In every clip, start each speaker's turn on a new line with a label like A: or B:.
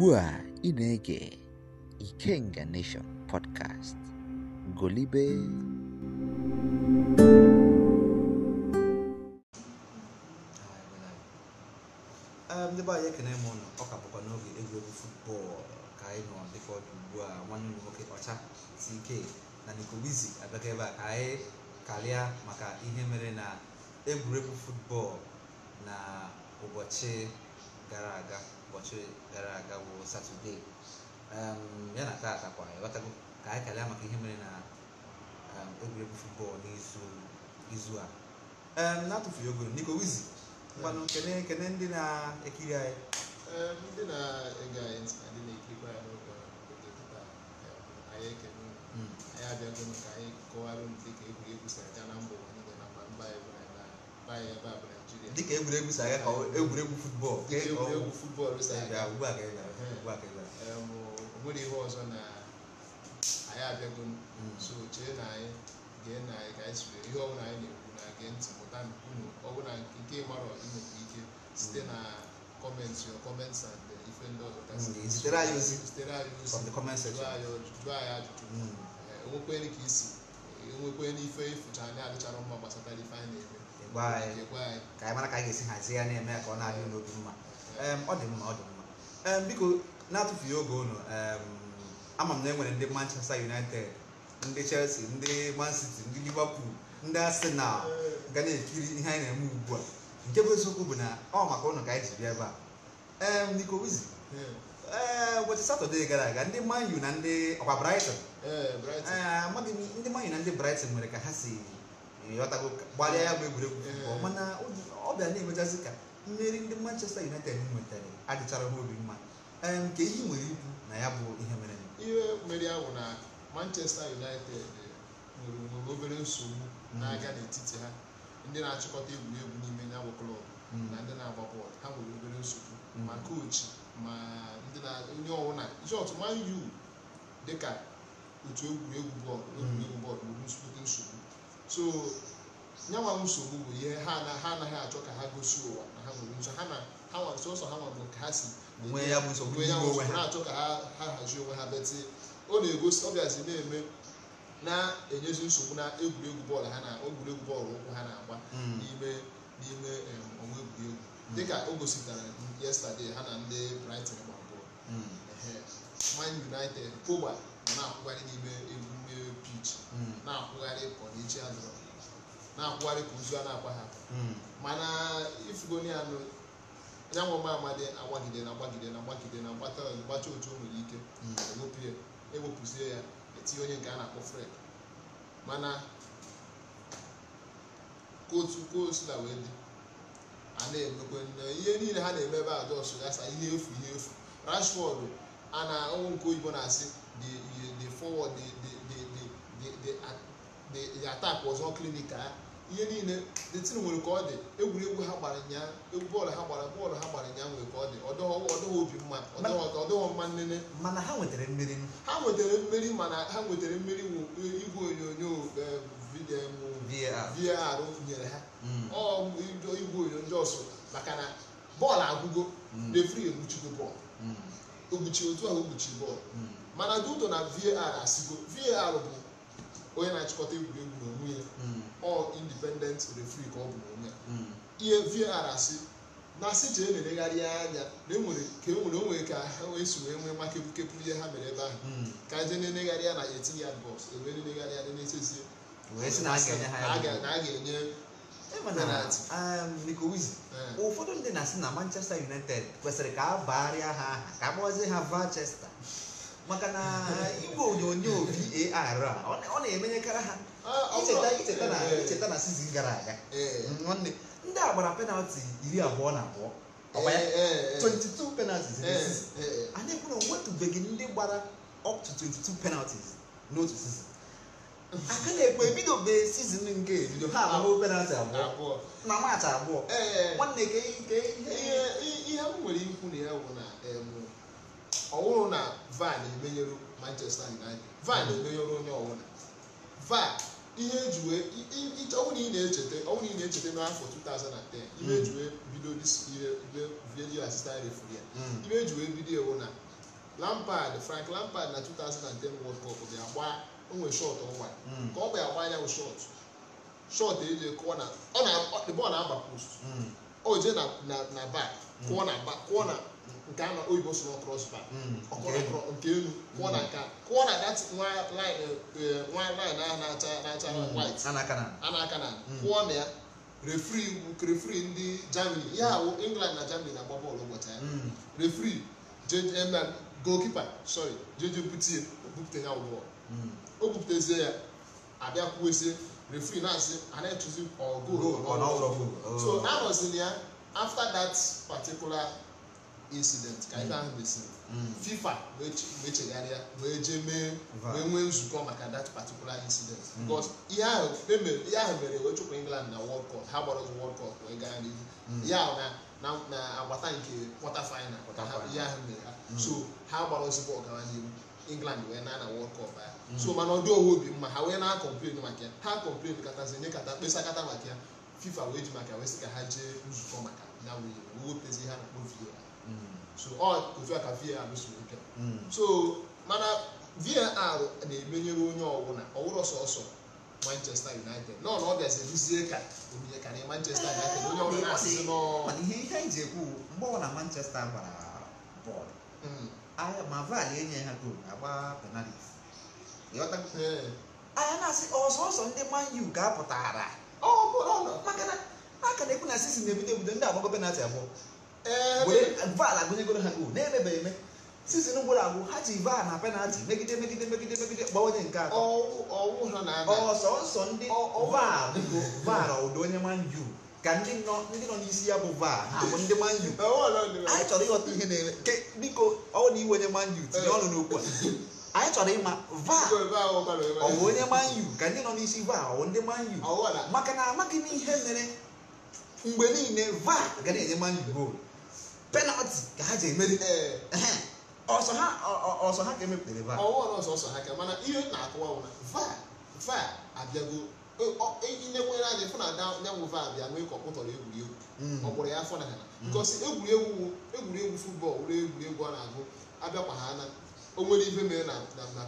A: ugbu a ị na-ege Ikenga Nation podcast golibe
B: ndị anyị ekene m ụlọ ọ ka bụkwa n'oge egwuregwu futbọọlụ ka anyị nọ dịka ọdụ ugbu a nwanne m nwoke ọcha ike na Nicobizi abịaka ebe a ka anyị karịa maka ihe mere na egwuregwu futbọọlụ na ụbọchị gara aga ụbọchị gara aga bụ satọdee um, ya na taa atakwa ịghọtago ka anyị kalịa maka ihe mere na egwuregwu um, futbọọlụ n'izu a um, na-atụfughị ogo Nico Wizi mmanụ kene ndị na-ekiri anyị ndị
C: na-ege anyị ntị na ndị na-ekirikwa ya n'oge anyị ekene anyị abịago maka anyị kọwara ndị ka egwuregwu si aga na mba ụwa niile na mba mba anyị dịka egwuregwu si ka egwuregwu si aga ugbu a ka ị gara ugbu a ka ị ihe ọzọ na anyị abịago hmm. so chee na anyị gee na anyị ka anyị siri ihe ọbụla anyị na-ekwu na gee ntị unu ọbụla nke ike site hmm. na kọmentị your and ife ndị ọzọ hmm, zitere anyị ozi anyị anyị ajụjụ enwekwere ka ịfụcha e anyị adịchara mma gbasata chekwa
B: anyị ka anyị mara ka anyị ga-esi hazie ya na-eme ka ọ na-adị n'obi mma ọ dị mma ọ dị mma biko na-atụfughị oge unu ama m na e nwere ndị Manchester United ndị Chelsea ndị Man City ndị Liverpool ndị Arsenal ga na-ekiri ihe anyị na-eme ugbu a nke bụ eziokwu bụ na ọ maka ụnụ ka anyị ji bịa ebe a Nico Wizi ụbọchị satọde gara aga ndị manyu na ndị ọkwa Brighton eh, amaghị ndị manyu na ndị Brighton nwere ka ha si ịghọtago gbalịa ya bụ egwuregwu ọma na ọ bịa na-emechazi ka mmeri ndị Manchester United nwetara adịchara ha obi mma nke ihe nwere ibu na ya bụ ihe mere ihe mere ahụ na Manchester
C: United eh, nwere obere nsogbu mm. na-aga n'etiti ha ndị na-achịkọta egwuregwu n'ime ya bụ klọb mm. na ndị na-agba bọọlụ ha nwere obere nsogbu mm. ma kochi ma ndị na onye ọbụla isi ọtụma yu dịka otu egwuregwu bọọlụ egwuregwu bọọlụ nwere nsogbu so nyanwa nsogbu bụ ihe ha na ha anaghị achọ ka ha gosi ụwa na ha nwere nso ha na ha sọsọ ha nwere ka ha si nwee ya bụ nsogbu na-achọ ka ha hazie onwe ha beti ọ na-egosi ọ na-eme na-enyezi nsogbu na egwuregwu bọọlụ ha na egwuregwu bọọlụ ụkwụ ha na-agba hmm. n'ime n'ime ọnwa egwuregwu hmm. dịka o gosipụtara yesterday ha na ndị Brighton gbara bọọlụ hmm. Man United Pogba na na-akwụgharị n'ime egwu iche hmm. na-akwụgharị ka ọnịchi a na-akwụgharị ka ozu a na-agba ha hmm. mana ifugoni anụ anyanwụ nwa ọma agbagide na agbagide na agbagide na agbata gbacha otu o nwere ike hmm. ewepụ ewepụzie ya etinye e onye nke a na-akpọ fred mana kootu koosula wee dị a na-emekwe ihe niile ha na-eme ebe adọsụ ya sa ihe efu ihe efu rashford a na ọnwụ nke oyibo na-asị the forward the Uh, the attack was not clinical ihe niile the team nwere ka ọ dị egwuregwu ha gbara nya bọọlụ ha gbara bọọlụ ha gbara nya nwere ka ọ dị ọdọghị obi mma ọdọghị mma
B: nnene mana ha nwetara
C: mmeri ha nwetara mmeri mana ha nwetara mmeri e, igwe onyonyo e, VAR e, nyere ha mm. igwe onyonyo ọsụ maka na bọọlụ agwụgo mm. refri egbuchigo bọọlụ ogbuchi mm. otu ahụ ogbuchi bọọlụ mana duto na VAR asigo VAR bụ onye na-achịkọta egwuregwu n'onwe ya ọ hmm. indipendent refri ka ọ bụ n'onwe ya hmm. ihe vr asị na asị jee na-elegharị anya na enwere ka enwere onwe ka ha wee si wee nwee maka ihe ha mere ebe ahụ hmm. ka e jee na enegharị ya na etinye ya bọs
B: ewee na enegharị ya na-echezie na a ga-enye e um, eh. ụfọdụ ndị na-asị na Manchester United kwesịrị ka a baarịa ha aha ka a kpọzie ha Manchester maka na igwe onyonyo VAR a ọ na-emenyekarị ha icheta na icheta na sizin gara aga nwanne ndị a gbara penalti iri abụọ na abụọ 22 penalties anyị kwuru nwetụbeghị ndị gbara up to 22 penalties n'otu sizin aka na-ekwe ebidobe sizin nke ebido ha abụọ penalti abụọ na maachị abụọ nwanne ke ihe m nwere ikwu na ya bụ na
C: ọ na van emenyere manchester united van emenyere onye na van ihe ọnwụ na ị na-echeta ọnwụ na ị na-echeta n'afọ 2010 hmm. ihe ejiwe bido video assistant referee ya hmm. ihe ejiwe bido ewu na lampard frank lampard na 2010 world cup ga-agba onwe shọt ọ hmm. ka ọ gbara agba anyanwụ shọt shọt eji kụọ na ọ na agba post o jee na bak kụọ na nke a na oyibo sụrụ crossbar hmm, nke elu hmm. kụọ na nka kụọ na dat eh, eh,
B: nwa line ahụ
C: na-acha na acha hmm, white anaka na kụọ na ya refri refri ndị germany ya awụ england na germany na-agba bọọlụ ụbọchị ya refri eh, goalkeeper sorry jeje butie obupute ya ụgbọ o bupụtezie ya abịa kwuezie refri na-asị a na-etụzi ọgụ so oh. anọzili ya after that particular incident ka ife mm. ahụ mesịrị mm. fifa wee chegharịa wee jee mee wee nwee nzukọ maka that particular incident mm. because ihe ahụ mere wee chụpụ england na world cup ha gbara world cup wee gaa n'ihu ya na agbata nke quarter final ihe ahụ mere ha so ha gbara ozugbo ọgara n'ihu england wee na na world cup ya so mana ọ dị obi mma ha wee na-akọmplen maka ya ha kọmplen katazi nye kata mkpesa kata maka ya fifa wee ji maka wee sị ka ha jee nzukọ maka ya wee wepụtazi ha na kpoviyo ya Mm. so ọ oh, otu a ka var si ike so mana var na-emenyere onye ọbụla ọwụrụ sọsọ manchester united nọ na ọ bịazi ruzie ka obiye ka na manchester ah,
B: united onye ọbụla na-asịzi nọ ihe ihe anyị ji ekwu mgbe ọ na manchester gbara bọọlụ mm. ma var enye ha goolu agba penalti anya na-asị ọsọsọ ndị man u ga-apụtara maka na a ka na-ekwu na sizin na ebute ebute ndị agbago penalti abụọ Eh, VAR agụnyegoro ha gol na-emebeghị eme sizin gwụrụ agwụ ha ji VAR na penalti megide megide megide megide gba onye nke atọ ọsọ nsọ ndị VAR bụ VAR ụdị onye manju ka ndị nọ ndị nọ n'isi ya bụ VAR ha bụ ndị manju anyị chọrọ ịghọta ihe na-eme biko ọ na iwe onye manju tinye ọnụ n'okwu a anyị chọrọ ịma VAR ọ bụ onye manju ka ndị nọ n'isi VAR ọ ndị manju maka na amaghị m ihe mere mgbe niile VAR ga na-enye manju goolu penalti ka ha ji emeri eh, eh, ọsọ ha ọsọ ha ka emepụtara va ọwụwa ọsọ ha ka mana ihe na-akụwa wụ na
C: va va abịago e, inyekwere anya fụ na nyanwụ va abịa nwee ka ọkpụtọrọ egwuregwu mm. ọ kpụrụ ya afọ na ha because egwuregwu egwuregwu fụtbọọl wụrụ egwuregwu a na-agụ abịakwa ha na o nwere ibe mere na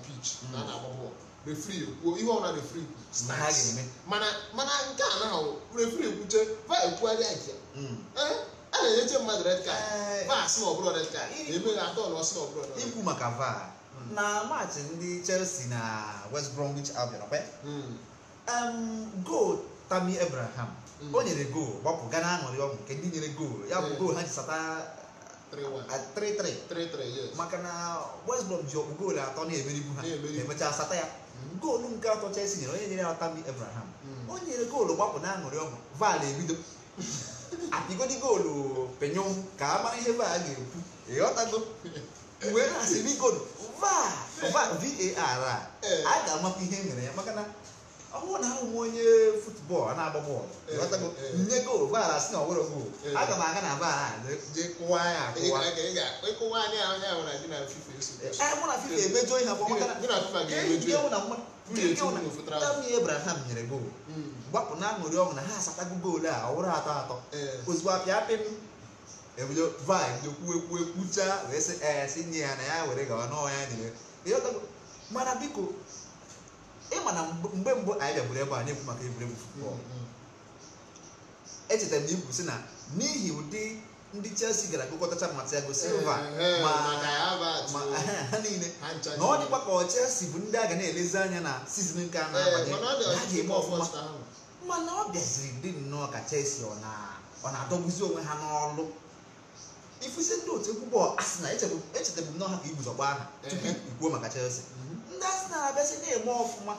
C: pitch na a na-agba bọọlụ refri kwuo ihe ọna refri mana nke a na refri kwuche va ekwugharịa nke a na-enyeche mmadụ red card vaa sị na ọ bụrụ red na atọ
B: na ọsị na ọ bụrụ ikwu maka vaa hmm. na maachị ndị Chelsea na West Bromwich Albion hmm. gol Tammy Abraham hmm. o nyere gol gbapụ gaa na-aṅụrị ọṅụ nke ndị nyere gol ya bụ gol ha ji sata 3-3 maka na West Brom ji ọkpụ goolu atọ na-emeribu ha emechaa sata ya goolu nke atọ Chelsea nyere onye nyere ya tami Abraham o nyere goolu gbapụ na-aṅụrị ọṅụ vaal ebido apigodi goolu penyom ka a mara ihe baa ga-ekwu ịghọtago wee na-asị bigod var a ga-amapụ ihe nwere ya maka na ọwụ na ahụ onye futbọọlụ na-agba bọọlụ ịghọtago nye goolu vaara sị na ọwụrụ aga m aga na vaara je kụwa ya akụwa na fifa e na Abraham nyere goolu gbapụ na aṅụrị ọṅụ na ha asatago goolu a ọhụrụ atọ atọ ozugbo apịa apị m ebido vaịn ekwu ekwu ekwucha wee sị ee nye ya na ya were gawa n'ọnwa ya niile mana biko ịma na mgbe mbụ anyị bịagburu ebe a na-ekwu maka egwuregwu futbọl echetara m na ikwu sị na n'ihi ụdị ndị Chelsea gara gụkọtacha Thiago Silva ma ha niile na ọ dịkwa ka ọ Chelsea bụ ndị a ga na-elezi anya na sizin nke a na-abanye ha ga-eme ọfụma mana ọ bịaziri dị nnọọ ka Chelsea ọ na-adọgbuzi onwe ha n'ọlụ ifusi ndị otu egwu bọọlụ Arsenal echetabu m n'ọha ka iguzogba aha tupu ikwuo maka Chelsea ndị Arsenal abịasị na-eme ọfụma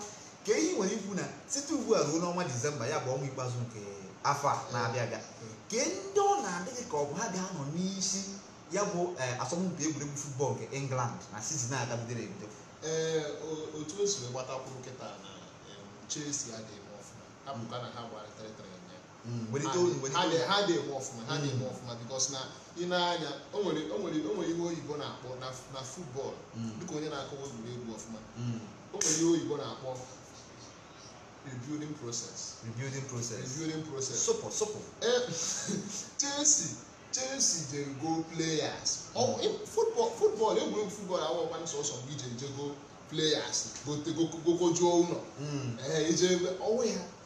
B: ka ehi nwere ikwu na site ugbu a ruo n'ọnwa Disemba ya bụ ọnwa ikpeazụ nke afọ a na-abịa abịa ka ndị ọ na-adịghị ka ọ bụ ha ga-anọ n'isi ya bụ eh, asọmpi egwuregwu futbọọlụ nke England na sizin a gabidoro ebido ee eh, otu o si gbatakwuru nkịta
C: na Chelsea adịghị abụka na ha gbara
A: ha dị-enwe ọfụma ha dị
C: bikos na ị na-anya o nwere ihe oyibo na-akpọ na futbọọlụ dịka onye na-akọwa egwuregwu ọfụma o nwere ihe oyibo na-akpọ rebuilding process rebuilding process rebuilding process Chelsea Chelsea go players futbọọlụ egwuregwu mgbe ije players ụlọ ije ya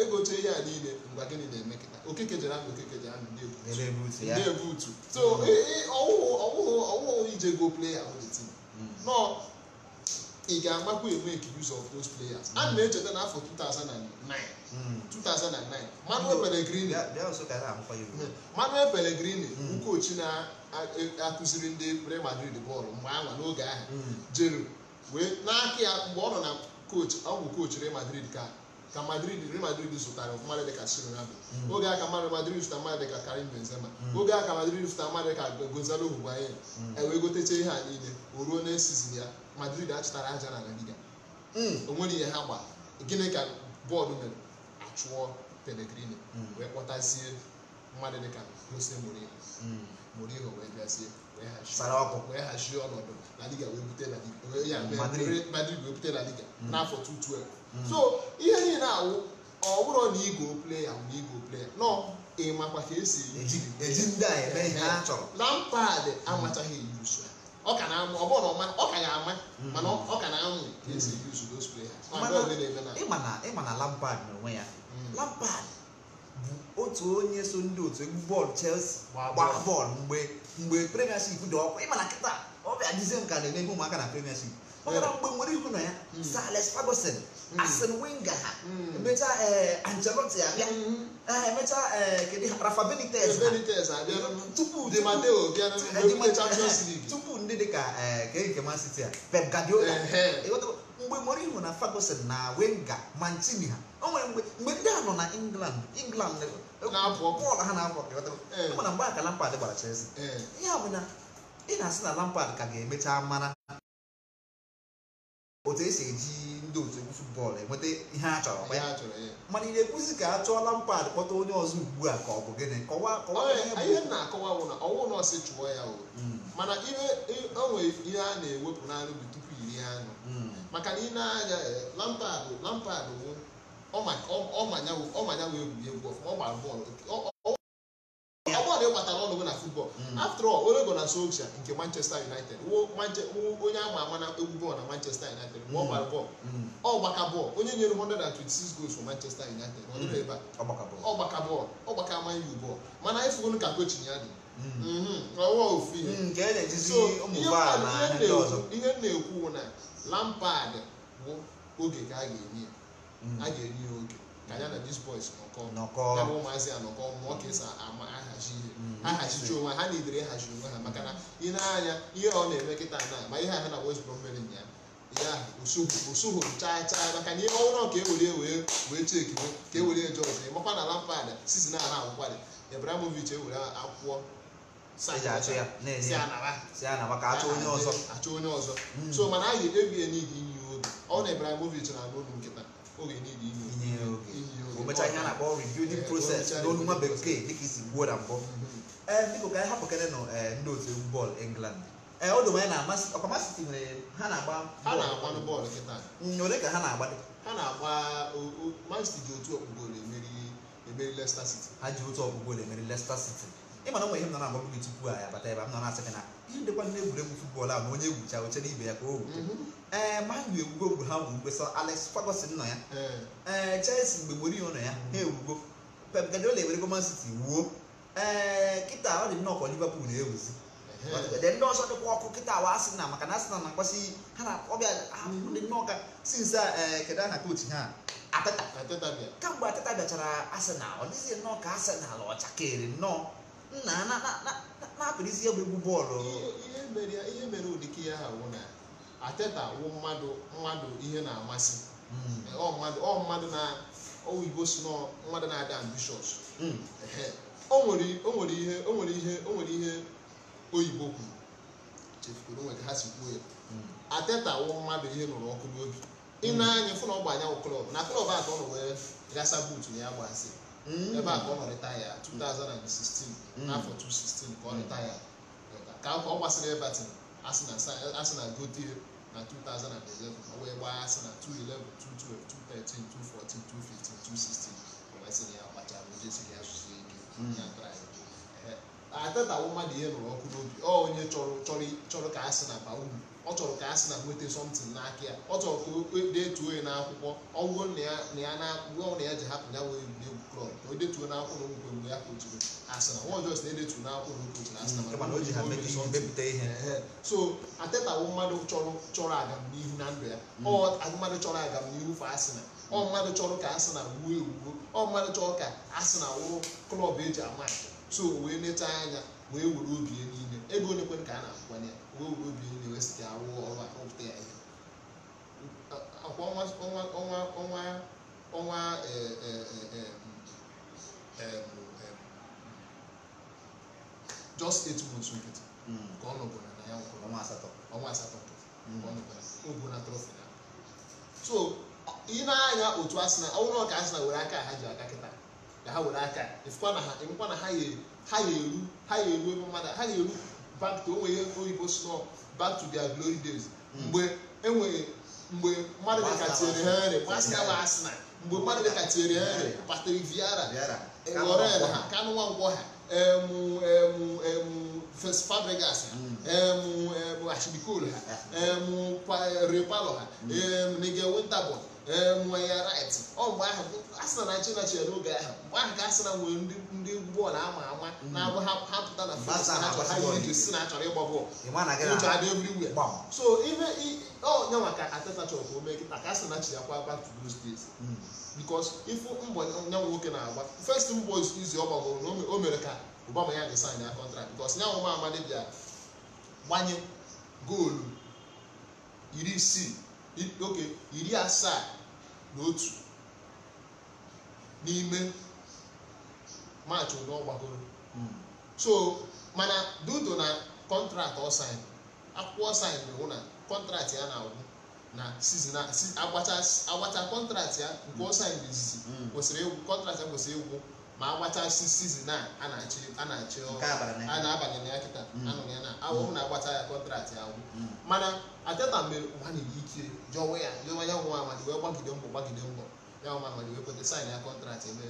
C: egote ihe a niile mgbe gịnị na-eme kịta okeke jere ahụ okeke jere ahụ na-ebu utu so mm. e, e, ọwụghụ ije go playa all the mm. nọ ị ga-agbakwa enwe use of those players a mm. na-echeta n'afọ 2009 2009 Manuel Pellegrini Manuel Pellegrini ukochi na-akụziri e, ndị Real Madrid bọọlụ mgbe anwa n'oge ahụ jere wee n'aka ya mgbe ọ nọ na koch ọ bụ koch Real Madrid ka ka Madrid Real Madrid zụtara mm. mmadụ dịka Ronaldo mm. oge a ka Madrid zụtara mmadụ dịka Karim Benzema oge a ka Madrid zụtara mmadụ dịka Gonzalo Higuain mm. ewee gotecha ihe a niile o ruo n'esizin ya Madrid achụtara aja na La onwere ihe ha gba gịnị ka bọọdụ mere achụọ Pellegrini wee kpọtazie mmadụ dịka Jose Mourinho Mourinho wee bịazie wee hazie ọnọdụ La Liga wee bute La Liga Madrid wee bute La Liga n'afọ 2012 Hmm. so ihe niile awụ ọ na igo pleya na igo nọ ị makwa ka esi na mpad amachaghị na na ọ ka ama hmm. mana na ka
B: esi hmm. players ịma na Lampard n'onwe ya Lampard bụ otu onye so ndị otu egwu bọọlụ Chelsea gbaa bọọlụ mgbe mgbe premiership dị ọkụ ịma na kịta ọ bịa na ụmụaka na premiership mana mgbe nwere ihu na ya Sir Alex Ferguson hmm. Arsene Wenger ha hmm. emechaa Ancelotti abịa emechaa kedu Rafa Benitez tupu tupu ndị dị ka keke Man City a eh? Pep Guardiola mgbe nwere ihu na Ferguson na Wenger Mancini ha mgbe ndị a nọ na England England bọọlụ ha na-abụ ọkụ mana mgbe aka Lampard gbara Chelsea ihe a bụ na ị na-asị na lampad ka ga-emecha mara otu esi eji ndị otu egwu futbọọlụ enweta ihe a chọrọ ya mana ị na-ekwuzi ka a chụọ lampad kpọta onye ọzọ ugbu a ka ọ bụ gịnị ihe
C: na-akọwa bụ na ọwụ na ọsị chụọ ya o hmm. mana ihe onwe ihe a na-ewepụ n'anụ bụ tupu iri anụ hmm. maka na ị na-anya eh, lampad lampad ọmanya wee egwuregwu ọfụma ọ gbara bọọlụ agbọghọ ịkpatara ọnụ na futbọl hmm. after all onye gọ na nke Manchester United onye ama ama na egwu bọọlụ na Manchester United ma hmm. ọ gbara bọọlụ hmm. ọ gbaka bọọlụ onye nyere 126 goals for Manchester United ọ dịrị ebe ọ gbaka bọọlụ ọ gbaka ama iwu bọọlụ mana efugo ka kochin ya dị ihe ihe na-ekwu na Lampard bụ oge ka a ga-enye ya oge ka ya na dis boys nọkọ ya bụ ụmụazị anọkọ mụọ ka esi ama ahazi ihe mm-hmm. ahazichi onwe ha na idere ịhazi onwe ha maka na ị na-anya ihe ọ na-eme kịta na ma ihe ahụ na West Brom mere ya ya usuhu chaa chaa maka na ihe ọhụrụ ka ewere
B: wee wee cheki
C: ka ewere George ịmakwa na Lampard sisi na ara e akwụkwọ Ibrahimovic ewere
B: akwụkwọ achọ onye ọzọ mm.
C: so mana a ga-ekpebi ya n'idi inye oge ọ na Ibrahimovic na-anụ olu nkịta
B: oge n'idi inye ụbọchị anya na-akpọ rebuilding process n'olu nwa bekee dịka isi gwuo na mbụ ee biko ka anyị hapụ kene nọ ndị otu egwu bọọlụ england ee ọ dụ onye na-amasị ọkwa masị tinyere ha na-agba bọọlụ kịta ole ka ha na-agba ha na-agba man city ji otu ọkpụgolo emeri Leicester siti. ha ji otu ọkpụgolo emeri Leicester siti. ịmana nwe ihe m nọ na-agba gị tupu a ya bata ebe m nọ na-asị gị na ihe ndekwa na egwuregwu tupu a ma onye egwucha oche n'ibe ya ka o ma mm-hmm. ee eh, manu ewugo ogwu ha nwuru mgbesa Alex fagosin nọ ya ee eh. eh, Chelsea mgbe Mourinho nọ ya ha mm-hmm. ewugo Pep Guardiola ewerego Man City wuo ee kịta ọ dị nnọọ Liverpool na-ewuzi ndị ọsọ dịkwa ọkụ kịta na maka na na akpasi ha na ọbịa dị ọ nnọọ nna na-apụrụisi na egwuregwu bọọlụ ihe mere ụdịka ya ha
C: wụ na ateta wụ mmadụ mmadụ ihe na-amasị ọ mmadụ na oyibo si nọ mmadụ na-ada ambishọs o nwere ihe o ihe oyibo kwuru chefukwuru onwe ha si kwuo ya ateta wụ mmadụ ihe nụrụ ọkụ n'obi ị na-anya fụ na ọ gbanya anyanwụ klọb na klọb atọ nọ wee gasa buutu na ya gbasị Mm. ebe mm. a ka ọ nọ retaya 2016 n'afọ 2016 ka ọ retaya ka ọ gbasara Everton asị na gote na 2011 ma wee gbaa asị na 2011 2012 2013 2014 2015 2016 o mesịrị ya gbacha asụsụ ike ya atata wụ mmadụ ihe nụrụ ọkụ n'obi ọ onye chọrọ ka a sị na baa uru ọ chọrọ ka a na nweta somtin n'aka ya ọ chọrọ ka o detuo ya n'akwụkwọ ọ wụrụ na ya na ya ji hapụ ya wee egwuregwu klọb ka o detuo n'akwụkwọ na ogwukwe mgbe ya asị na nwa ọjọọ si na-edetu n'akwụkwọ na okpoturu asị na so atetawo mmadụ chọrọ agamnihu na ndụ ya mm. ọ mmadụ chọrọ agamnihu fa asị na ọ mmadụ chọrọ ka ewuo ọ mmadụ chọrọ ka asị na wụrụ klọb eji ama so wee anya wee were obi ya niile ego onye kwere ka a na-akwụkwanye ya obi university awụ ọrụ akpụpụta ya ihe akwa ọnwa ọnwa ọnwa just eight months nkịtị ka ọ na ya ọnwa asatọ ọnwa na trọfi na so ị na-anya otu asị na ọka asị were aka ha ji aka kịta ka ha were aka ịfụkwa na ha ịmụkwa na ha eru ha eru ebe mmadụ ha back to onwe ihe oyibo snow back to their glory days mgbe enwere mgbe mmadụ dịka Thierry Henry masta bụ Arsenal mgbe mmadụ dịka Thierry Henry Patrick Vieira Laurent ha Kanu Nwankwo ha emu emu emu Fabregas ha emu mm. emu Ashley Cole ha emu Repalo ha n'ege mm. Nigel Winterborn enwe eh, ya right ọ ahụ a na Naịjirịa chere n'oge ahụ mgbe ahụ ka asị na nwere ndị bọọlụ ama ama mm. na-abụ ha pụta na fis ihe si na achọrọ ịgba bọọlụ ụcha dị so ihe onye maka Ateta chọrọ ka o kịta ka a na mm. ya kwa ifu mbọ nya nwoke na-agba first mbọ izi ọ gbagoro na o mere ka Obama ya ya contract because nya amadi bịa gbanye goolu oke iri asaa na otu n'ime maachị ụdọ gbagoro hmm. so mana dudo na kọntraktị ọsain akwụkwọ ọsain na na kọntraktị ya na-agwụ na sizin agbacha kọntraktị ya nke bụ izizi hmm. kwesịrị egwu ma agbachasị sizin a a na-achị a na-abanye na ya kịta mm. anụrụ ya na awụhụ na-agbacha ya kọntraktị ahụ mm. mana ateta mere mmadụ ike jọwa ya jọwa ya nwa amadi wee gbagide mbọ gbagide mbọ ya nwa amadi wee kweta saịn ya kọntrat ebe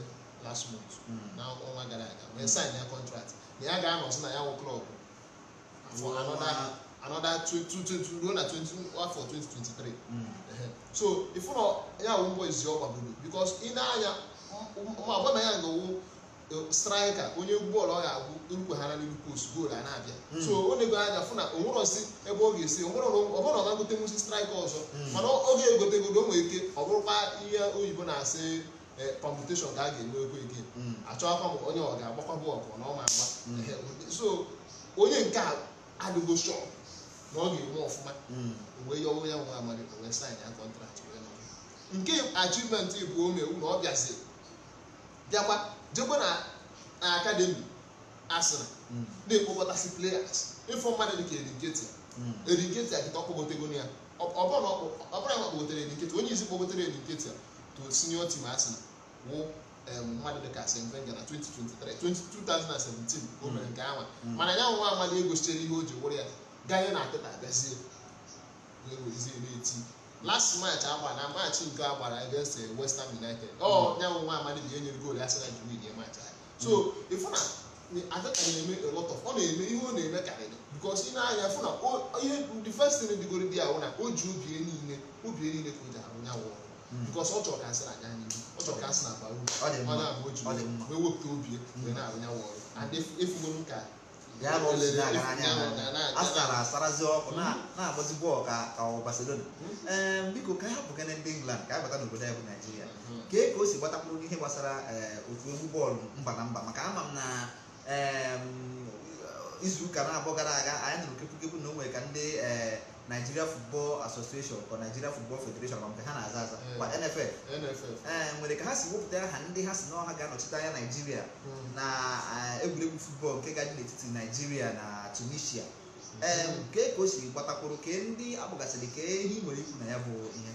C: last month mm. na ọnwa gara aga wee saịn ya kọntrat na ya ga-anọzi na ya wụ klọb anọda ruo na afọ 2023 so ifu na ya wụ mbọ izi ọ gbagoro bikos ị na-anya ma na ya gawo straịka onye egwu bọọlụ ọ ga-agwụ erukwehara n'elu post goolu a na-abịa hmm. so ọ na anya fụ na onwerọzi ebe ọ ga-esi ọbụrụ ọ ga-agote nwụsi ọzọ hmm. mana oge egote egodo o nwere ike ọ bụrụkwa ihe oyibo na-asị eh, permutation ka a ga-enwe ego ike hmm. achọghịkwa m onye ọ ga-agbakwa bọọlụ na ọma ma agba so onye nke a adịgo shọ na ọ ga-enwe ọfụma mgbe ya ya nwa amarị wee saịn ya kọntraktị nke achievement bụ omewu na ọ bịaziri bịakwa jekwa na akademi asịrị hmm. na-ekpokọtasị players ịfụ mmadụ dị ka erinketi hmm. erinketi kịta ọkpọgotego ya ọbụna ọkpọgotere erinketi onye isi kpọgotere erinketi to senior team asịrị wụ mmadụ dị ka Svenga na 2023 2017 o mere nke ahụ hmm. mana ya nwa amadị egosichere ihe o ji wụrụ ya gaye na atịta abịazie wee wezie na-eti last match agba na match nke a gbara against West Ham United ọ oh, mm. nyanwụ nwa amadi bụ ihe nyere goolu ya sị na jiri nye match anyị so ifu na Arteta na-eme a lot of ọ na-eme ihe ọ na-eme karịrị because ị na-anya fụ na ihe ndị first thing dịgoro dị ahụ na o ji obi niile obi niile ka o ji arụ nyanwụ mm. because ọ chọrọ ka asị na anya n'ihu
B: ọ chọrọ ka asị na agba uru ọ na-abụ oji wewepụta obi mm. wee na-arụ nyanwụ ọrụ and efugo m ka bịa na ụlọ ebe agara anya ha asara asarazi ọkụ na-agbazi bọọlụ ka ka ọ Barcelona hmm? ee biko ka ha bụgana ndị England ka a bata n'obodo anyị bụ Naijiria hmm. ka e ka o si gbatakwuru ihe gbasara eh, otu egwu bọọlụ mba na mba maka ama m na izu ụka na-abụọ gara aga anyị nụrụ kepụkepụ na o nwere ka ndị ee eh, Nigeria Football Association or Nigeria Football Federation ma nke ha na-aza aza eh, kwa NFF ee eh, nwere ka ha si wepụta aha ndị ha si na ọha ga-anọchite anya Nigeria hmm. na eh, egwuregwu futbọl nke gaji n'etiti Nigeria na Tunisia hmm. ee nke ka o si gbatakwuru ka ndị akpọgasịrị ka ihe nwere ikwu na ya bụ ihe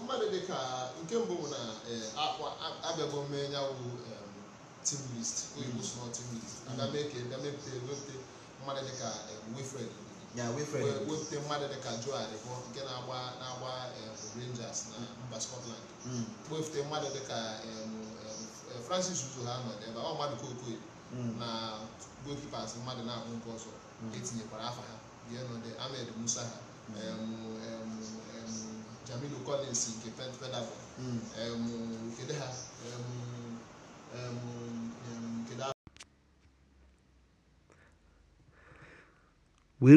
C: mmadụ dị ka nke mbụ bụ na abịago mee ya bụ team list hmm. oyibo small team list aga mee ka ga mepụta mmadụ dị ka Wilfred wepụta mmadụ dị ka Joe Aribo nke na-agba na-agba um, Rangers na mba Scotland mm. wepụta mmadụ dị ka um, um, Francis Uzo ha nọ ebe ọ mmadụ kokoye mm. na goalkeepers mmadụ na-ahụ nke ọzọ mm. etinyekwara afa ha bienode Ahmed Musa ha Jamil Collins nke Peterborough kedu ha
A: were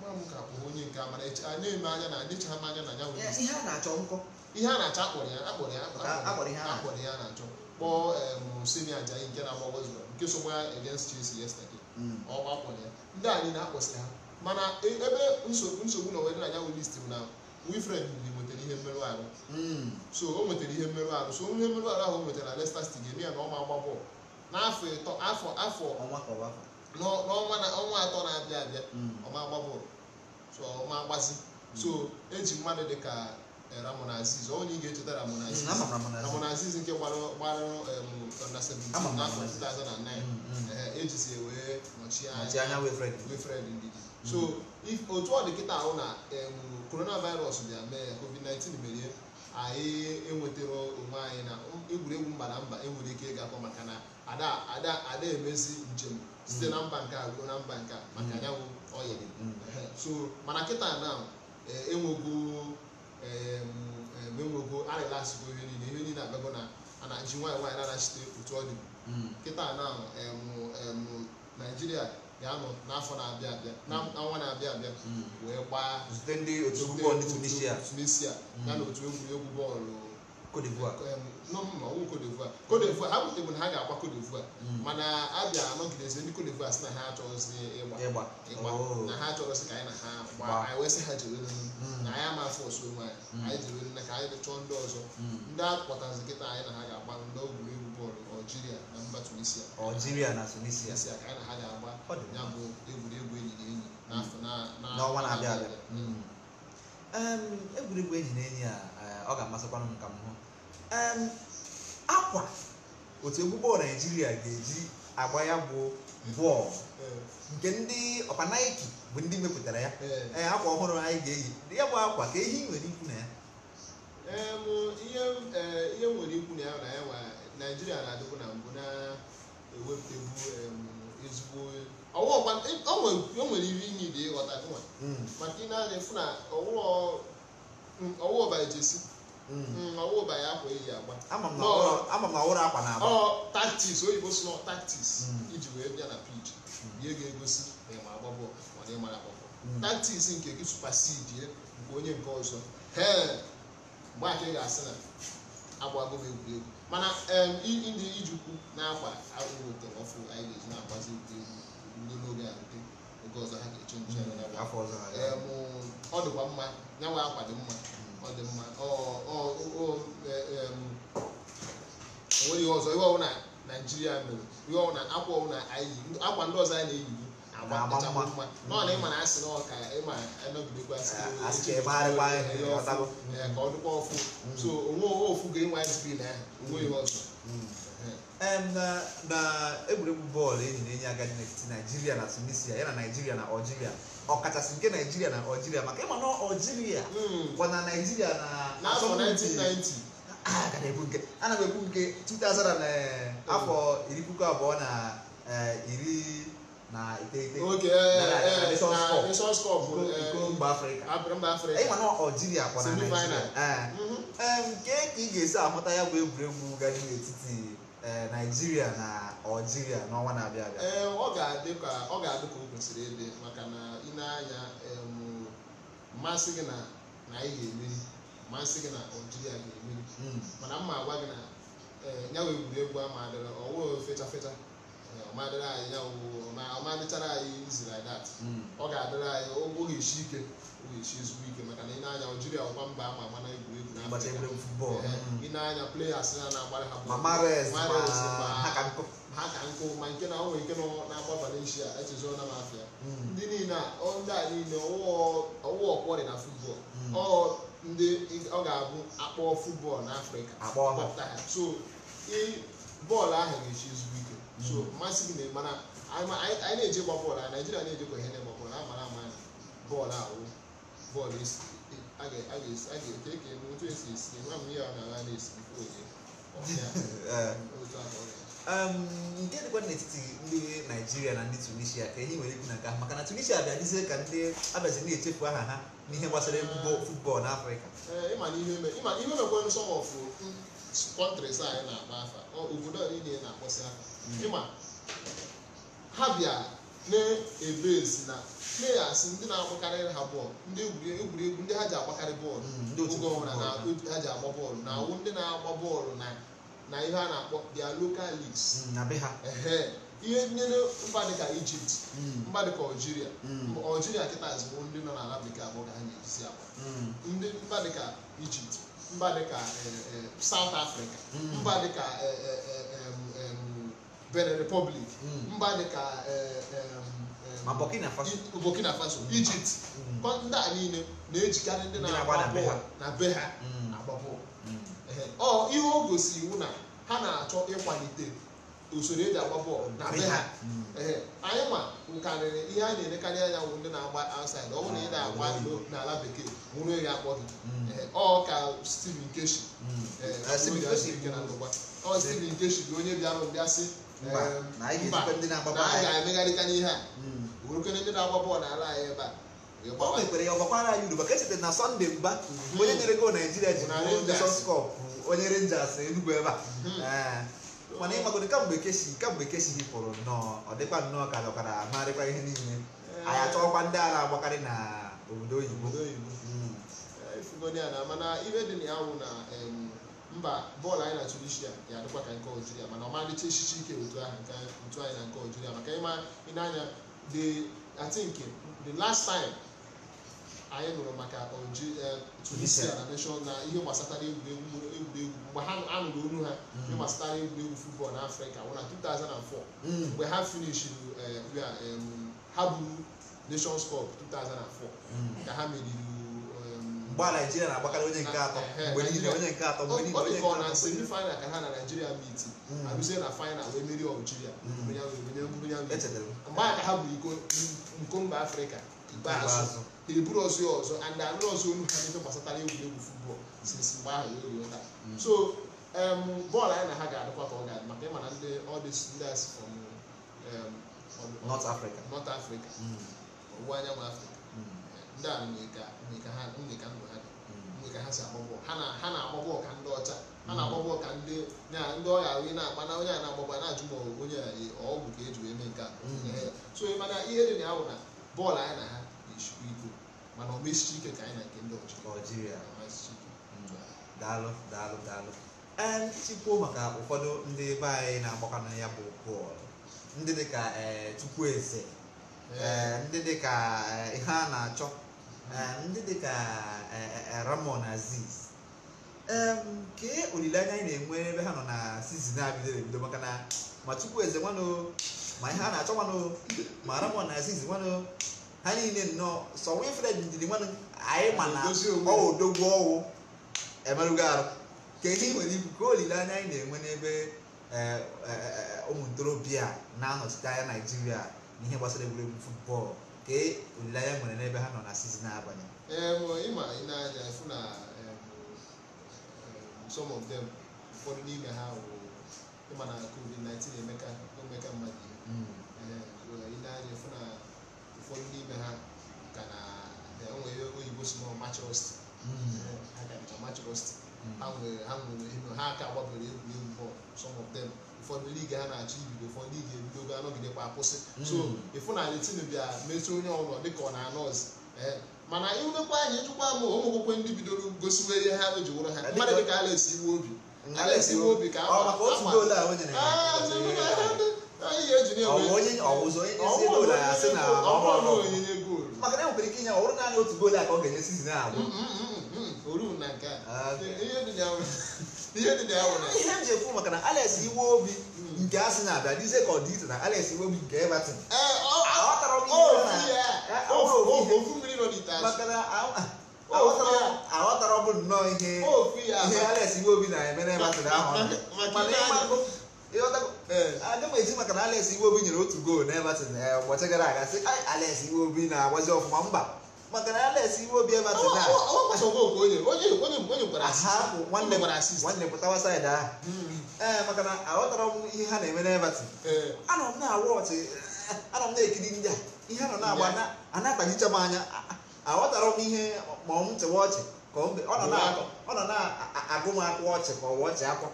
C: nwa m ka bụ onye nke amara anya eme anya na anyị adịchaghị m anya na anyanwụ ihe a na-achọ nkọ ihe a na-achọ akpọrọ ya akpọrọ ya akpọrọ ya na-achọ kpọọ Simi Ajayi nke na-agba nke so ya against Chelsea yesterday hmm. ọgba akpọrọ ya ndị anyị na-akpọsịrị ha mana e, ebe nsogbu na owere anyanwụ list m na wifred nwetara ihe mmerụ ahụ hmm. so o nwetara ihe mmerụ ahụ so ihe mmerụ ahụ ahụ o nwetara Leicester City ga-eme ya na ọ ma agba bọọlụ n'afọ ịtọ afọ afọ n'ọnwa na ọnwa atọ na-abịa abịa hmm. ọma agbabụrụ so ọma hmm. so eji mmadụ dị ka eh, Ramon onye ị ga-echeta ramona Aziz ramona nke gbarụ na 2009 ejisi wee nọchie anya Wilfred Ndidi hmm. so otu ọ dị kịta ahụ na coronavirus bịa mee COVID-19 merie anyị enwetara onwe anyị na egwuregwu mba na mba enwere ike ịgakọ maka na ada ada emezi njem site na mba nke a ruo na mba nke a maka mm. anyanwụ oyiri mm. so mana kịta na e, enwego enwego arịlasịgo ihe niile ihe niile abago na a na-aji nwaanyị na-anachite otu ọ dị mm. kịta na Naijiria ga-anọ n'afọ na-abịa abịa hmm. n'ọnwa na-abịa abịa hmm. wee gbaa zute ndị otu bọọlụ ndị tunisia tunisia hmm. ya na otu egwuregwu bọọlụ Cote d'Ivoire Cote ha abụtegbu na ha ga-agba Cote d'Ivoire mana abịa anọgidezi ndị Cote d'Ivoire si na ha achọghịzi ịgba ịgba oh. na ha achọghịzi ka anyị na ha gbaa anyị wee sị ha jere na anyị ama afọ osu onwe anyị anyị na ka anyị chọọ ndị ọzọ ndị akpọtazi nkịta anyị na ha ga-agba n'ogwuregwu Algeria na mba Tunisia Algeria na Tunisia ka na ha ga-agba ya bụ egwuregwu
B: enyi na enyi Na mm. n'ọnwa na-abịa abịa mm. egwuregwu enyi na enyi a eh, ọ ga-amasịkwa m ka m hụ akwa otu egwu bọọlụ Naijiria ga-eji agba ya bụ bọọlụ eh. nke ndị ọkpa Nike bụ ndị mepụtara ya ee eh. akwa ọhụrụ anyị ga-eyi ya bụ akwa ka ehi nwere ikwu na ya
C: ihe nwere ikwu na ya na ya naijiria na-adịkwu na mbụ na-ewepụtebu ezigbo e, o nwere ihe inyi dị ịghọta hmm. maka ị na-adị fụ na ọwụwa ọbaechesi ọwụwa ya akwa eyi agba taktis oyibo taktis iji hmm. wee bịa na pich hmm. ihe ga-egosi ma ị agba bọọlụ ma ị mara agba bọọlụ taktis nke gị supasidi nke onye nke ọzọ mgbe ake ga-asị na agbago m egwuregwu mana ndị ijukwu na-agba agụrụ tọrọ ọfụ anyị ga-eji na-agbazi ndị n'oge a rute oge ọzọ ha ga-eche nche hmm, ọ dịkwa mma ya nwe akwa dị mma ọ dị mma onweghị ọzọ ihe ọwụ na naijiria mere ihe ọwụ na akwa ọwụ na anyị akwa ndị ọzọ anyị na-eyi na-ama mma ịma na
B: ịma ga egwuregwu bọọlụ enyi na-enye agadi n'etiti naijiria na tunisia ya na naijiria na ọkachasị nke naijiria na maka ịma ekwu nke afọ iri puku abụọ na iri na iteghete eh, eh, Nations Cup iko eh, mba afrịka afrịka. mana ọjiria kwa na naijiria mm-hmm. nke ka ị ga-esi amụta ya bụ egwuregwu gari n'etiti naijiria na ọjiria n'ọnwa na-abịa abịa
C: ọ ga-adị ka ọ kwesịrị ịdị maka na ị na-anya mmasị gị na na anyị ga-emeri mmasị gị na ọjiria ga-emeri mm. mana mma agwa gị na nyawa egwuregwu ama adịrị ọwụ fechafecha ọmadịrị anyị ya ma ọmadịchara anyị izi like that hmm. ọ ga-adịrị anyị o ga-eshi ike o ga-eshi ezigbo ike maka na ị na-anya Algeria ọgba mba ama ama na egwuregwu n'Afrịka eh, hmm. ị na-anya players ya na-agbara ha Mahrez ha ka nkụ ma nke na onwe ike nọ na-agba Valencia echezọ na mafia hmm. ndị niile ndị a niile ọwụwa dị na futbọl ndị ọ ga-abụ akpọ futbọl n'Afrịka so bọọlụ ahụ ga-eshi ezigbo ike so mmasị gị mana anyị na-eje gba bọọlụ a naijiria na-ejekwa ihe na-egba bọọlụ amara ama bọọlụ ahụ bọọlụ a ga-ete
B: ka eme otu esi esi nwa m ihe ọ na-agha na-esi onye nke dịkwa n'etiti ndị naijiria na ndị tunisia ka ihe nwere ikwu na nka maka na tunisia abịazie ka ndị abịazi na-echefu aha ha n'ihe gbasara futbọọlụ n'afrịka
C: ihe mekwa nsọ ọfụ kọntrịs anyị na akpa afa obodo niile na-akpọsị aka ịma ha bịa na-ebe ezi na na-asị ndị na-agbakarị ha bọọlụ ndị egwuregwu ndị ha ji agbakarị bọọlụ mm, oge ọbụla na ha ji agba bọọlụ na awụ ndị na-agba bọọlụ na na ihe a na-akpọ their local leagues mm, ihe nyere mba dịka Egypt mm. mba dịka Algeria Algeria kịta ezigbo ndị nọ n'ala bekee abụọ ka ha na-ejizi agba ndị mba dịka Egypt mba dịka eh, eh, South Africa mba dịka eh, benin republic hmm. mba dịka eh, burkina faso ijipt hmm. hmm. ndị a niile na-ejikarị ndị na-agba be ha agba ọ ihe o gosi iwu na ha na-achọ ịkwalite usoro eji agba bọọlụ na be ha anyị ma nkarịrị ihe a na-elekarị anya wụ ndị na-agba asid ọ bụrụ na ị ah, na-agba ndo n'ala bekee nwụrụ ya akpọ gị ọ ka Stephen Keshi ah, ọ Stephen Keshi bụ onye bịara mbịa sị mba na anyị ga-ezikwa ndị na-agba bọọlụ anyị ga-emegharịta ihe a bụrụkene ndị na-agba bọọlụ n'ala anyị ebe
B: a o mekwere ya ọgbakwara anyị uruba ka echeta na sọnde Mba. onye nyere go naijiria ji sọskọp onye renjas enugwu ebe a mana ịmagoro kamgbe keshi kamgbe keshi hipụrụ nnọọ ọ dịkwa nnọọ ka dọkara amarịkwa ihe niile anyị achọkwa ndị a na-agbakarị na obodo oyibo
C: mba bọọlụ anyị na Tunisia ga-adịkwa ka nke ojiria mana ọmalịcha echichi ike otu ahụ otu na nke ojiria maka ịma ịnanya dị I think the last time anyị nụrụ maka eh, Tunisia na nation na ihe gbasatara egwuregwu mgbe ha anụrụ olu ha hmm. ihe gbasatara egwuregwu futbọọlụ na Afrịka wụ na 2004 hmm. mgbe ha finishiri eh, ha buru Nations Cup 2004 hmm. ka ha meriri a naijiria na-agbakarị onye nke atọ mgbe niile onye nke atọ mgbe niile oh, onye nke atọ na semifinal ka ha na naijiria meet hmm. arụzie na final wee merie aljiria mgbe aka ha bụ iko nko mba afrịka ikpeazụ eburu ọzọ ọzọ and anụrụ ọzọ olu ha n'ebe gbasatara egwuregwu futbọl sisi mgbe ahụ ya orie ụta hmm. so um, bọọlụ anyị na ha ga-adịkwa ka ọ ga-adị maka ịma na ndị ọdịs ndị asị from um, North Africa hmm. ọwụwa anyanwụ afrịka. ndị a ka ndụ ha dị hmm. ka ha si agba bọọlụ ha na-agba ka ndị ọcha ha hmm. na-agba ka ndị ọya ahụ na-agba na onye a na a na-ajụ ma onye ọgwụ ka eji wee mee nke a hmm. so mana ihe dị na ya bụ na
B: bọọlụ anyị na ha na-eshikwa iko mana ọ mesichi ike ka anyị na nke ndị ọjịrịa daalụ daalụ daalụ ee maka ụfọdụ ndị be anyị na-agbakọ na ya bụ bọọlụ ndị dịka Chukwueze ndị dịka ihe a na-achọ Ah, ndị dị ka eh, eh, eh, Ramon Aziz nke olileanya anyị na-enwe ebe ha nọ na sizin abidoro ebido maka na ma Chukwueze nwanụ ma ihe a na-achọ nwanụ ma Ramon Aziz nwanụ ha niile nnọọ sọ nwe ndidi nwanụ anyị ma na odogwu ọwụ emerụgo arụ ka ihe nwere ibu ka olileanya anyị na-enwe n'ebe ụmụ ntorobịa na-anọchite anya Naịjirịa n'ihe gbasara egwuregwu futbọọlụ ka olileanya nwere n'ebe ha nọ na sizin abanye
C: ịma na some of dem ụfọdụ n'ime ha na covid-19 emeka mmadụ mm. ịna-aja na ụfọdụ n'ime ha ka na enweghị oyibo si nọ machrost mm. ha ka dịka machrost mm. ha nwere ha nwere ha gbabere egwuregwu bọọlụ some of ụfọdụ liga ha na-achọ ibido ụfọdụ liga ebidogo anọgidekwa akwụsị so ịfụnanya tinu bịa metụ onye ọbụla dịka ọ na-anọ mana ịnekwa anyị ịchụkwa m ụmụ akwụkwọ ndị bidoro gosiwe ihe ha eji wụrụ ha mmadụ dịka Obi Obi ka onyinye goolu
B: ọrụ a na nke a ihe dị ya ihe m ji ekwu maka na Alex iwe obi nke asị na-abịa dize ka ọ dị iche na Alex iwe obi nke Everton
C: eh, aghọtara
B: bụ nnọọ ihe ihe Alex iwe obi na-eme na Everton ahụ aga eh. m eji maka na Alex iwe obi nyere otu goolu na Everton eh, ụbọchị gara aga si Alex iwe obi na-agbazi ọfụma mba maka na alex iwe obi ebe atụ nwanne pụtawa saịdị ahụ hmm. ee eh, maka na aghọtara m ihe ha na-eme n'ebati eh. anọ m na-ekiri ndị a ihe anọ na-agba ana-akpajicha m anya aghọtara m ihe ma ọ m chewe ọchị ka ọ nọ na-agụ m akwa ọchị ka ọ wee ọchị akwa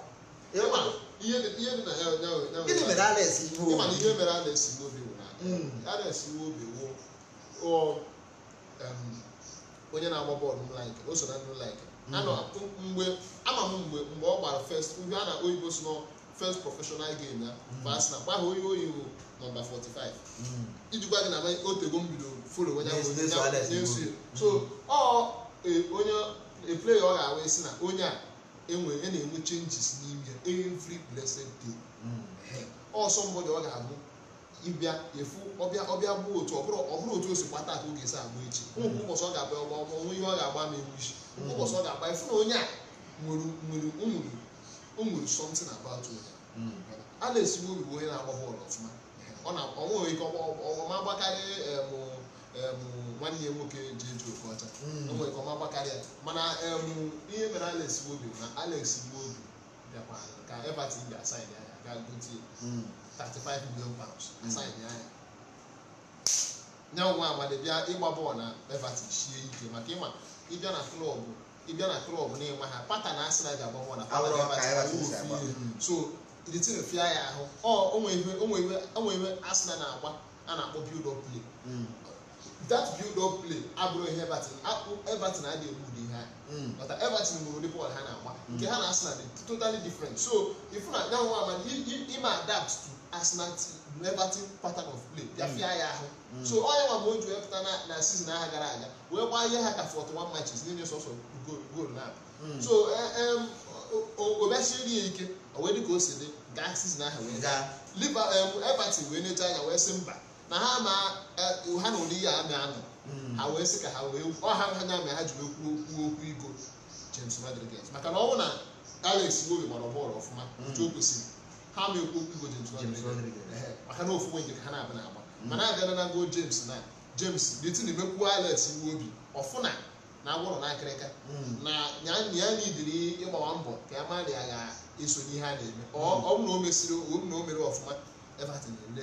B: gịnị mere alex iwe
C: obi Um, onye na-agba bọọlụ m like o so na ndị like hmm. mgbe ama m mgbe mgbe ọ gbara first ndị a na oyibo si nọ first professional game ya mgbe hmm. ma sị na gbaghị onye oyibo nọmba 45 hmm. ijikwa gwa gị na otego m bido folo onye na-eso so ọ e, onye a player ọ ga-awụ isi na onye a enwe e na-enwe changes n'ime every blessed day ọ somebody ọ ga-abụ ịbịa efu ọbịa ọbịa bụ otu ọbụrụ ọbụrụ otu osi si kpata ka ọ ga-esi agba echi ụmụ ụbọchị ọ ga-agba ọgba ọgba ọnwe ihe ọ ga-agba ma ewu isi ụbọchị ọ ga-agba efu na onye a nwere nwere nwere nwere something about onye a na bụ onye na-agba bọọlụ ọfụma ọ na ọnwe ike ọma agbakarị nwanne ya nwoke ji eji oke ọcha onwe hmm. ike ọma agbakarị ya mana ihe mere Alex na na Alex na-esigbu obi bịakwa ka Everton ga-asaịn ya ga gotie 35 million pounds asaịn ya ya nye nwa amadị bịa ịgba bọọlụ na Everton sie ike maka ịma ịbịa na klọbụ ịbịa na klọbụ na-enwe ha pata na asị na ga-agba bọọlụ na pata na Everton so ya ahụ ọ onwe iwe Arsenal na-agba a na-akpọ build up play that build up play abụrụ ihe Everton Everton adịghị egbu ụdị ha mata Everton nwere ụdị bọọlụ ha na-agba nke ha na Arsenal dị totally different so ifu na nyanwụ ama ime adapt to Arsenal Everton pattern of play ya fịa ya ahụ so onye nwa ma o ji wepụta na season aha gara aga wee gbaa ihe ha ka 41 matches niile sọsọ goal na so obesiri ya ike o wee dị ka o si dị gaa season aha wee gaa Everton wee necha anya wee sị mba na ha ma eh, ha na ụdị ihe amị anọ hmm. ha wee sị ka ha wee ọha ha na ha ji wee kwuo okwu okwu igo James Rodriguez maka na ọnwụ na Alex Iwobi gbara bọọlụ ọfụma nke hmm. o kwesịrị ha ma ekwu okwu igo James Rodriguez maka na ofu nwenye ka ha na-abụ na-agba hmm. mana abịara na gol James na James detin emekwuo Alex Iwobi ọfụna na agwụrụ n'akịrịka na ya niidiri ịgbawa mbọ ka ya ma na ya ga-eso n'ihe a na-eme ọ bụrụ na o na o mere ọfụma Everton na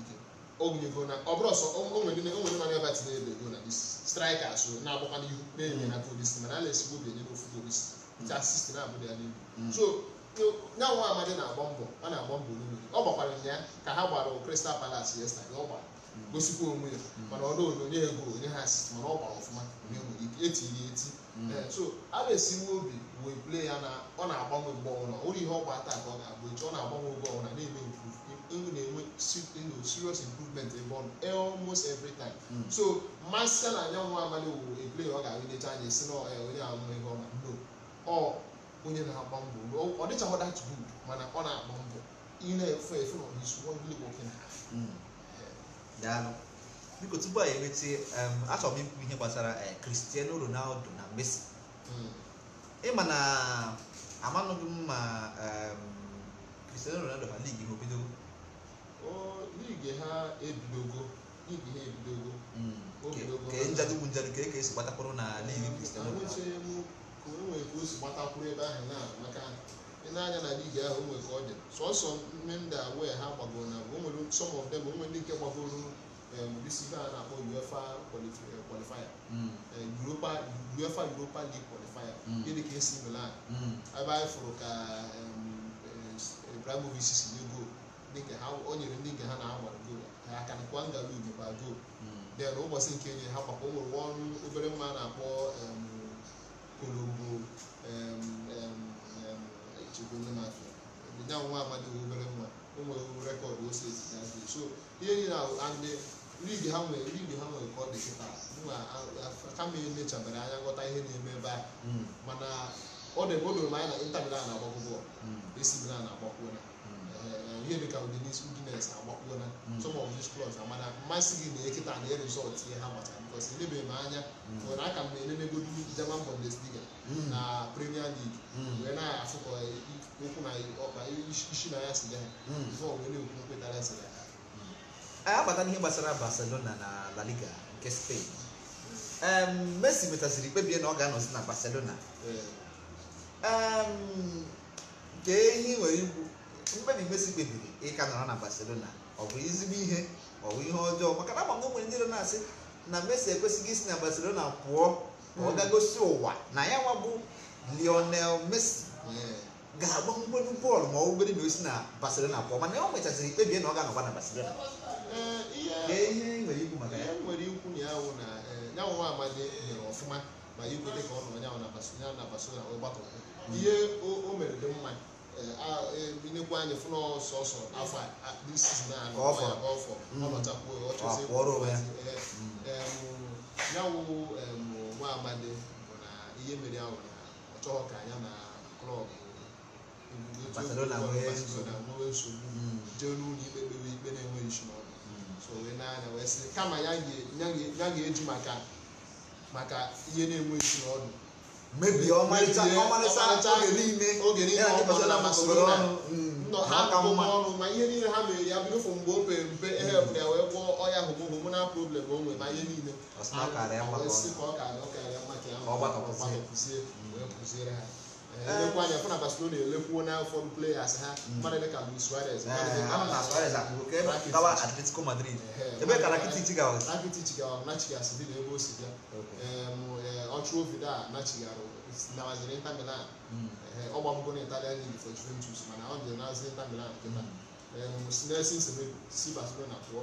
C: ogwunyego na ọ bụrụ ọsọ onwe onwere na abịa tinye ebe ego na isi straịka so na-agbakwa n'ihu na-enye na polisi mana a na-esigbo obi enye n'ofu polisi ta na ya mm. so nya nwa na-agba mbọ ọ na-agba mbọ n'ime ọ gbakwara ya ka ha gbara Crystal Palace yesterday ọ gbara mm. gosikwa onwe ya mm. mana ọrụ onye ego onye ha mana ọ gbara ọfụma onye nwere ike eti eh, so a na obi wee plee ya na ọ na-agbanwe mgbe ọ ihe ọ gba taa ka ọ na-agbanwe oge na-eme nke unu na-enwe serious improvement ebe almost every time hmm. so masịa anyanwụ abalị wuru eple ọ ga-ahụdecha anya esi na eh, onye ahụ ihe ọma no ọ onye na-agba mbọ ọ dịchaghị that good mana ọ na-agba mbọ ị na-efe efe na
B: hmm. biko tupu a enweta achọrọ m ihe gbasara eh, Cristiano Ronaldo na Messi hmm. ịma na amanụghị m ma Cristiano Ronaldo ha ligi ha obidogo ka esi gbatakwụrụ n'ala ka ebe ahụ
C: na maka na na ligi ahụ onwe ka ọ dị sọsọ mmemda wee ha gbagoro na bụ o nwere some of them o ndị nke gbagoro bisi um, a na-akpọ UEFA eh, qualifier hmm. eh, Europa UEFA Europa League qualifier dị hmm. ka esi Milan hmm. ebe anyị fụrụ ka um, eh, Ibrahimovic si nye goolu dịka ha o nyere ndị nke ha na anwara goolu ha aka nkwa ngala ugbo ba goolu den hmm. ụbọchị nke nyere ha gbakwa o nwere ọrụ obere mma a na-akpọ kolombo chegona nwa amadi obere mma o nwere rekọdụ ose so ihe niile ndị ligi ha nwere ligi ha nwere ka ọ dị kịta kama emechabere anya ghọta ihe na-eme ebe a hmm. mana ọ dịbe o doro m anya na ịntanetị hmm. a na-agbakọ bọọlụ esi a na-agbakọ ya ihe dị ka udinisi udinesi agbakpuo na mm. some of these clubs na mana mmasị gị na ekịta na result ihe ha gbachara because elebeghị m anya mm. nwere aka m na elenegodu German Bundesliga mm. na Premier League wee na-afụ ka okwu
B: na ọkpa isi na ya si ya before wee na-ekwu nkwetara si ya agbata n'ihe gbasara Barcelona na La Liga nke Spain Messi metaziri kpebie na ọ ga-anọzi na Barcelona nke ihe nwere ikwu mkpebi Messi kpebiri ịka nọrọ na Barcelona ọ bụ ezigbo ihe ọ bụ ihe ọjọọ maka na ama m nwere ndị na-asị na Messi ekwesịghị isi na Barcelona pụọ ka ọ hmm. gagosi ụwa na ya nwa bụ Lionel Messi ga-agba mgbelu bọọlụ ma ọ bụrụ na osi na Barcelona pụọ mana ya o ikpebie na ọ ga na Barcelona
C: eh, ihe ihe o mere dị nekwu anyị fụna sọsọ afọ sizin a ọfọ ọnọchapụ ya wụ nwa amadi bụ na ihe mere ahụ na ọ ka anya na klọb nwee nsogbu jee n'ụlọ ikpe kpewe ikpe na-enweghị so wee wee sị kama ya ga-eji maka ihe na-enweghị isi mebie ọmarịcha oge niile oge niile ọ bụla masịrị ọnụ mm, aka mma ma ihe niile ha mere ya bido mgbe o pere mpe ehepụ ya wee gwọọ ọya na problem o nwere ihe niile ọ karịa mma ọ karịa mma
B: ka ya kwụzie wee kwụziere ha
C: elekwa anya fụna barcelona elekwuo na fọm players ha mmadụ dịka luis suarez eh, atletico
B: madrid eh, ebe ka rakitic gawa
C: rakitic gawa nachigas dị na ebe o si mm. bịa ọchụ eh, ovido a nachigara nawaziri inter milan ọgba gbamgo na italian league for juventus mana ọ jere nazi inter milan kịta si barcelona pụọ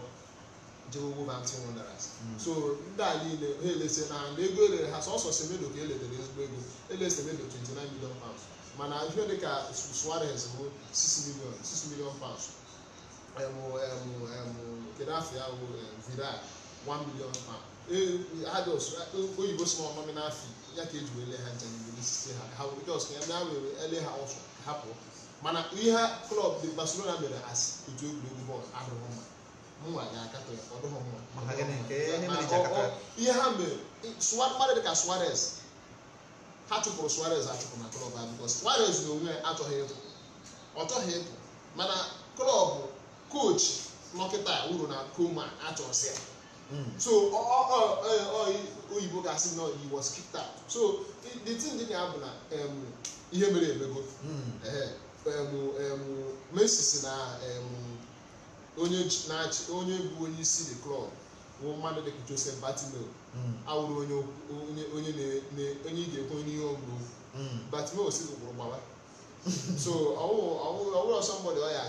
C: jehovatin hmm. wonders so ndị a niile ha elesi na na ego elere ha sọsọ semedo ka eledere ezigbo ego elesi semedo 29 million pounds mana ihe dịka suarez bụ 6 million 6 million pounds kedu afọ ya bụ vidal 1 million pound e, e, oyibo si na ọmami n'afọ ya ka eji wele ha njem n'isi ha jos na ya were ele ha ọsọ hapụ mana ihe klọb Barcelona mere asị otu egwuregwu bọọlụ adịghị mma mụnwa ga-akatọ ya ọ dịghị mma ihe ha mere mmadụ dịka Suarez ha chụpụrụ Suarez achụpụ na klọb ha bikos Suarez na onwe achọghị ịpụ ọ chọghị ịpụ mana klọb koch nọkịta uru na koma achọsị hmm. ya so oyibo ga-asị na he was kicked out so the thing dị ya bụ na ihe mere emego Messi si na onye na-achị onye bụ onye isi the club bụ mmadụ dịka Joseph Batimeo hmm. awụrụ onye ị ga-ekwe onye ihe ọgwụ hmm. Batimeo si ụkpụrụ gbawa so ọwụrụ somebody ọ ya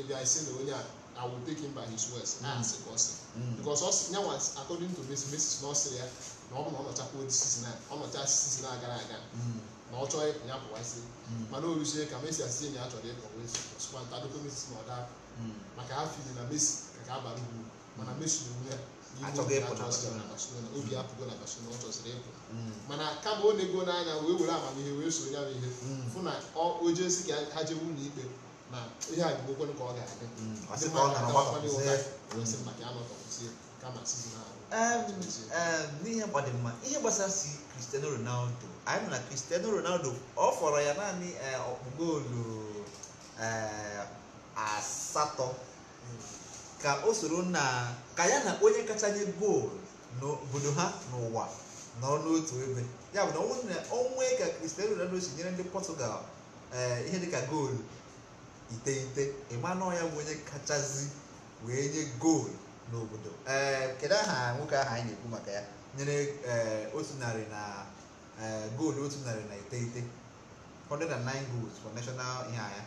C: ịbịa isi na onye a I will take him by his words na hmm. asị ka ọ sị because ọ sị nyanwa according to Messi Messi na ọ sịrị ya na ọ bụ na ọ nọchakwa odi season a ọ nọcha season a gara aga na ọ chọọ ịpụ ya pụwa isi mana o ruzie ka Messi asị enyi ya chọrọ ịpụ wezi ọsịkwa ntadokọ Messi na ọ daa Hmm. maka afọ inye na Messi ka ka abara uru mana hmm. Messi na ya obi hmm. apụgo na Barcelona ọ chọsịrị ịpụ mana kama ọ na-ego n'anya wee were amamihe wee soro ya ihe fụ na o jesi ka ha jewe
B: ụlọ ikpe na ihe a bụgokwe ka ọ ga-adị kama n'ihe gbadịmma ihe gbasara si Cristiano Ronaldo anyị nọ na Cristiano Ronaldo ọ fọrọ ya naanị eh, ọkpụ goolu eh, asatọ ka o soro na ka ya na onye kacha nye goolu n'obodo ha n'ụwa nọrọ n'otu ebe ya bụ na onwe ka Cristiano Ronaldo si nyere ndị Portugal eh, ihe dịka goolu iteghete ọ ya bụ onye kachasị wee nye goolu n'obodo eh, kedu aha nwoke ahụ anyị na-ekwu maka ya nyere eh, otu narị na goolu otu narị na iteghete 109 goals for national ihe anya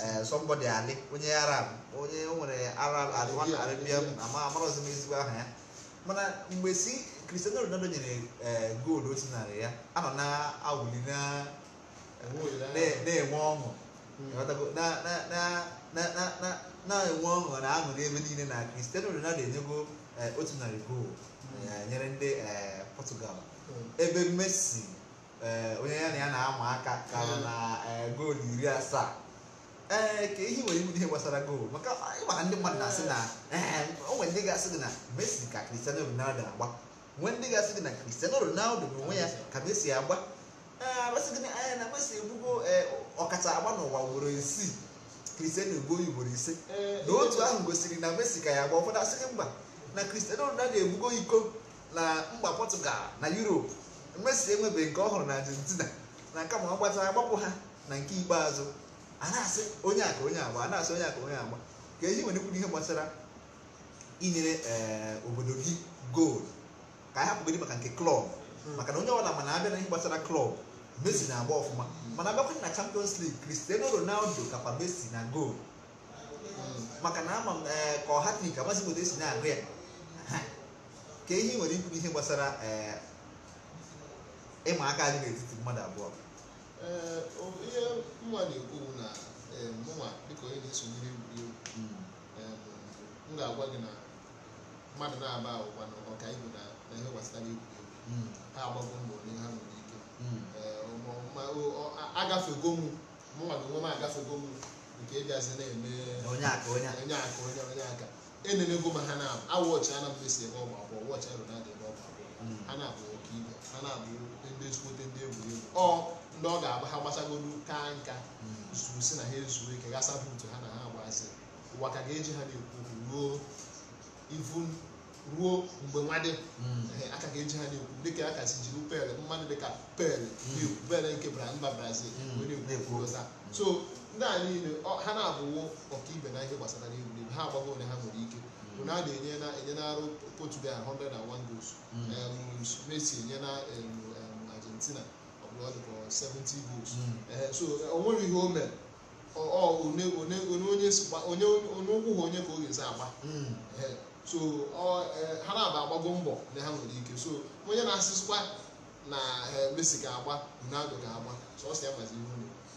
C: ee eh, somebody ali
B: onye arab onye nwere arab one arabian amarọzi m ezigbo aha ya mana mgbe si cristiano ronaldo nyere eh, goolu otu narị ya anọ na awuli na-enwe ọṅụ hmm. na-enwe ọṅụ na aṅụrị ebe niile na cristiano ronaldo enyego eh, otu narị goolu hmm. nyere ndị portugal hmm. ebe messi onye ya na ya na-ama aka ka na goolu iri asaa ee eh, ka ehi nwere iwu ihe gbasara goolu maka ịmara ndị mmadụ na-asị na ee o nwere ndị ga-asị gị na Messi ka Cristiano Ronaldo agba nwee ndị ga-asị gị na Cristiano Ronaldo n'onwe ya ka Messi agba ee amasị gị na anya egbugo ọkacha agba n'ụwa ugboro isii Cristiano egbuo ugboro ise na otu ahụ gosiri na Messi ka ya agba ụfọdụ asịrị gị mba na Cristiano Ronaldo egbugo iko na mgba Portugal na Europe Messi enwebeghị nke ọhụrụ hụrụ na Argentina na kama ọ gbata agbapụ ha na nke ikpeazụ a na-asị onye aka onye agba a na-asị onye aka onye agba ka eji nwere kwuru ihe gbasara inyere eh, obodo gị goolu ka a hapụgodị maka nke klọb hmm. maka na onye ọbụla mana abịa na ihe gbasara klọb Messi na-agba ọfụma hmm. mana abịakwa na Champions League Cristiano Ronaldo kapa Messi na goolu
A: hmm.
B: maka na ama m eh, ka ọ hatrik amasị obodo esi na-agụ ya ka ihe nwere ikwu ihe gbasara eh, ịma aka dị n'etiti mmadụ abụọ
C: ihe nwa na-ekwu na mụnwa dịka onye na-esonyere egwuregwu mm. m ga-agwa gị na mmadụ na-aba ụwa na ọka ibu na ihe gbasara egwuregwu mm. ha agbago mbọ n'ihe ha nwere ike mm. agafego mụ mụnwa gị nwe m agafego m nke ịbịazi e na-eme onye aka onye aka e enenego ma ha na-abụ awọchị ana m esi ebe ọgba akwụkwọ wọchị arụ na-adị ebe ọgba akwụkwọ ha na-abụ ọka ibe ha na-abụ ndị ezigbote ndị egwuregwu ọ ndị ọ ga-agba ha gbasagolu ka nka zuru si na ha ezuo ike gasa buutu ha na ha agbazi ụwa ka ga-eji ha na-ekwu okwu ruo ivu ruo mgbe nwadị hmm. aka ga-eji ha na-ekwu dịka a kasị jiri pel mmadụ dịka pel hmm. na-ekwu pel nke bara mba brazil hmm. so ndị a niile ha na-abụwo ọkaibe na ihe gbasara n'egwuregwu ha agbago onye ha nwere ike bụ na a na-enye na-enye na-arụ portugal 101 goals um, messi enye na um, um, argentina 70 goals hmm. eh, so eh, o nwere ihe o mere ọ one one onye onye ụkwụ ha onye ka o ga-esi agba hmm. eh, so ha na-aba agbago mbọ na ha nwere ike so onye na-asịsịkwa
B: na Messi ga-agba Ronaldo ga-agba so ọ sị ya gbazi ihe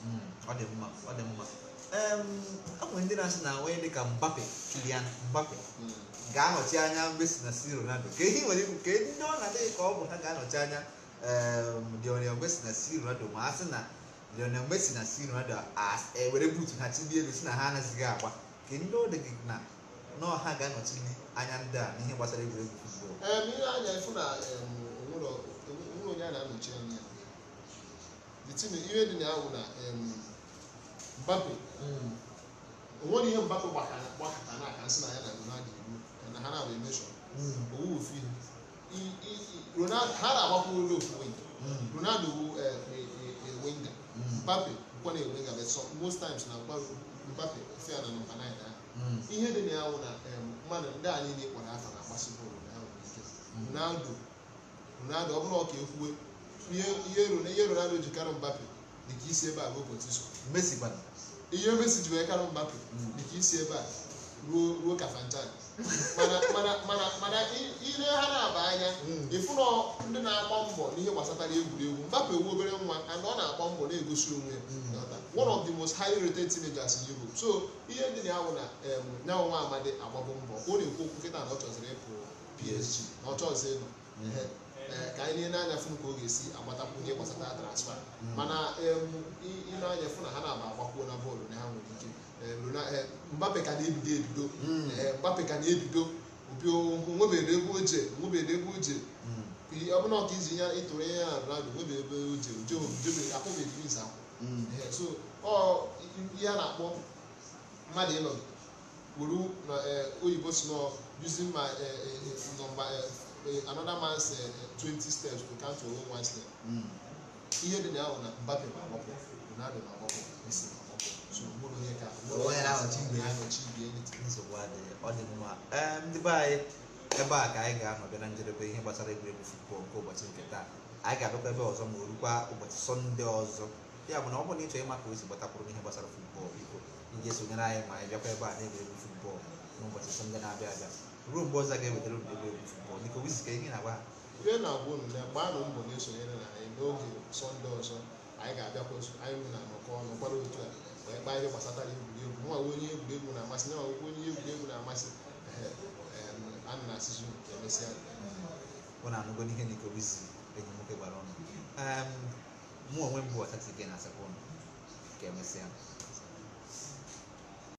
B: hmm. ọ dị mma ọ dị mma enwere ndị na-asị na onye ka mbape kilian mbape ga-anọchi anya Messi na si Ronaldo ka ihe nwere ikwu ka ndị ọ na-adịghị ka ọ bụ ha ga-anọchi anya deɛ ɔnayɛ mbɛsi na sii ronaldo ma ase na deɛ ɔnayɛ mbɛsi na sii ronaldo as ɛwɛrɛ e, boot na ti bi ebisi na ha na sigi akwa kedu ɔde na na ɔha ga na ɔtí bi anya ndị a n'ihe gbasara egwuregwu futbọọlụ.
C: ee ehm, ihe anya efu na ehm, onwere onye a na-anọchi anya the team ihe dị na ahụ na ehm, mbappe hmm. onwere ihe mbappe gbakọta n'aka nsị na ya na ronaldo iwu na ha na-abụ emeshọn hmm. owu ofu ihe Ronaldo ha na ndị onye ofuwenga Ronaldo eh, wu enwenga Mbappe bụkwa na enwenga bụ most times na mgbaru Mbappe si ya na nọmba 9 ahụ ihe dị na ya wụ na eh, mmadụ ndị anyị na-ekpọrọ afa na-agbasi bọọlụ na ahụ ike Ronaldo Ronaldo ọ bụrụ ọka ekwuwe ihe Ronaldo ji karụ Mbappe dị ka isi ebe a bụ ụbọchị so Messi gbara ihe Messi ji wee karụ Mbappe dị ka isi ebe a ruo ruo Kafanchak mana mana ile ha na-aba anya ịfụna hmm. ndị na akpọ mbọ n'ihe gbasatara egwuregwu mgbapụ ewu obere nwa ana ọ na-agba mbọ na-egosi onwe ya hmm. one of the most highly rated teenagers in Europe so ihe ndị na-awụ na nyanwa nwa amadi agbabụ mbọ ọ na-ekwu okwu kịta na ọ chọziri ịpụ PSG na ọ ịnọ Eh, ka anyị na-anya fụ ka ọ ga-esi agbatakwu ihe gbasata transfa hmm. mana ị na-anya fụ na ha na-aba agbakwuo na bọọlụ na ha nwere ike eh, eh, Mbappe ka na-ebido ebido hmm. Mbappe ka na-ebido nwebeghị ebe oje nwebeghị ebe oje hmm. ọbụna ọka iji ya ịtụrụ ihe ya rado nwebeghị ebe oje ojebeghị akwụbeghị ise akwụ so ihe a na-akpọ mmadụ ịnọgide wuru na oyibo si nọ using my nọmba Eh, another man said eh, twenty steps to count your one ihe dị na ahụ na Mbappe ma agbapụ Ronaldo ma agbapụ Messi ma
B: so mụrụ onye eh, e ka onye na-ahọchi igwe ya ahọchi nsogbu adịghị ọ dị mma ndị be anyị ebe a ka anyị ga-anọbịa na njedebe ihe gbasara egwuregwu futbọl nke ụbọchị nke taa anyị ga-abịakwa ebe ọzọ ma o ụbọchị sọnde ọzọ ya bụ na ọ bụrụ na ịchọ ịma ka o ị esonyere anyị ma anyị bịakwa ebe a na-egwuregwu futbọl n'ụbọchị sọnde na-abịa abịa ruo mgbe ọzọ ga-ewetara unu egwu egwu fụtbọọlụ biko ihe na-agwa ha ihe na-agwa unu na gbaanụ mbọ na-esonyere
C: na anyị n'oge sọnde ọzọ anyị ga-abịakwa anyị na anọkọ ọnụ kwara otu a wee kpaa ihe gbasatara egwuregwu nwa onye egwuregwu na-amasị nwa onye egwuregwu na-amasị
B: a na asịzụ emesịa ọ na-anụgo n'ihe na ikobizi enyi nwoke gbara
A: ọnụ mụ onwe m bụ ọtati gị na asakwa ọnụ ka emesịa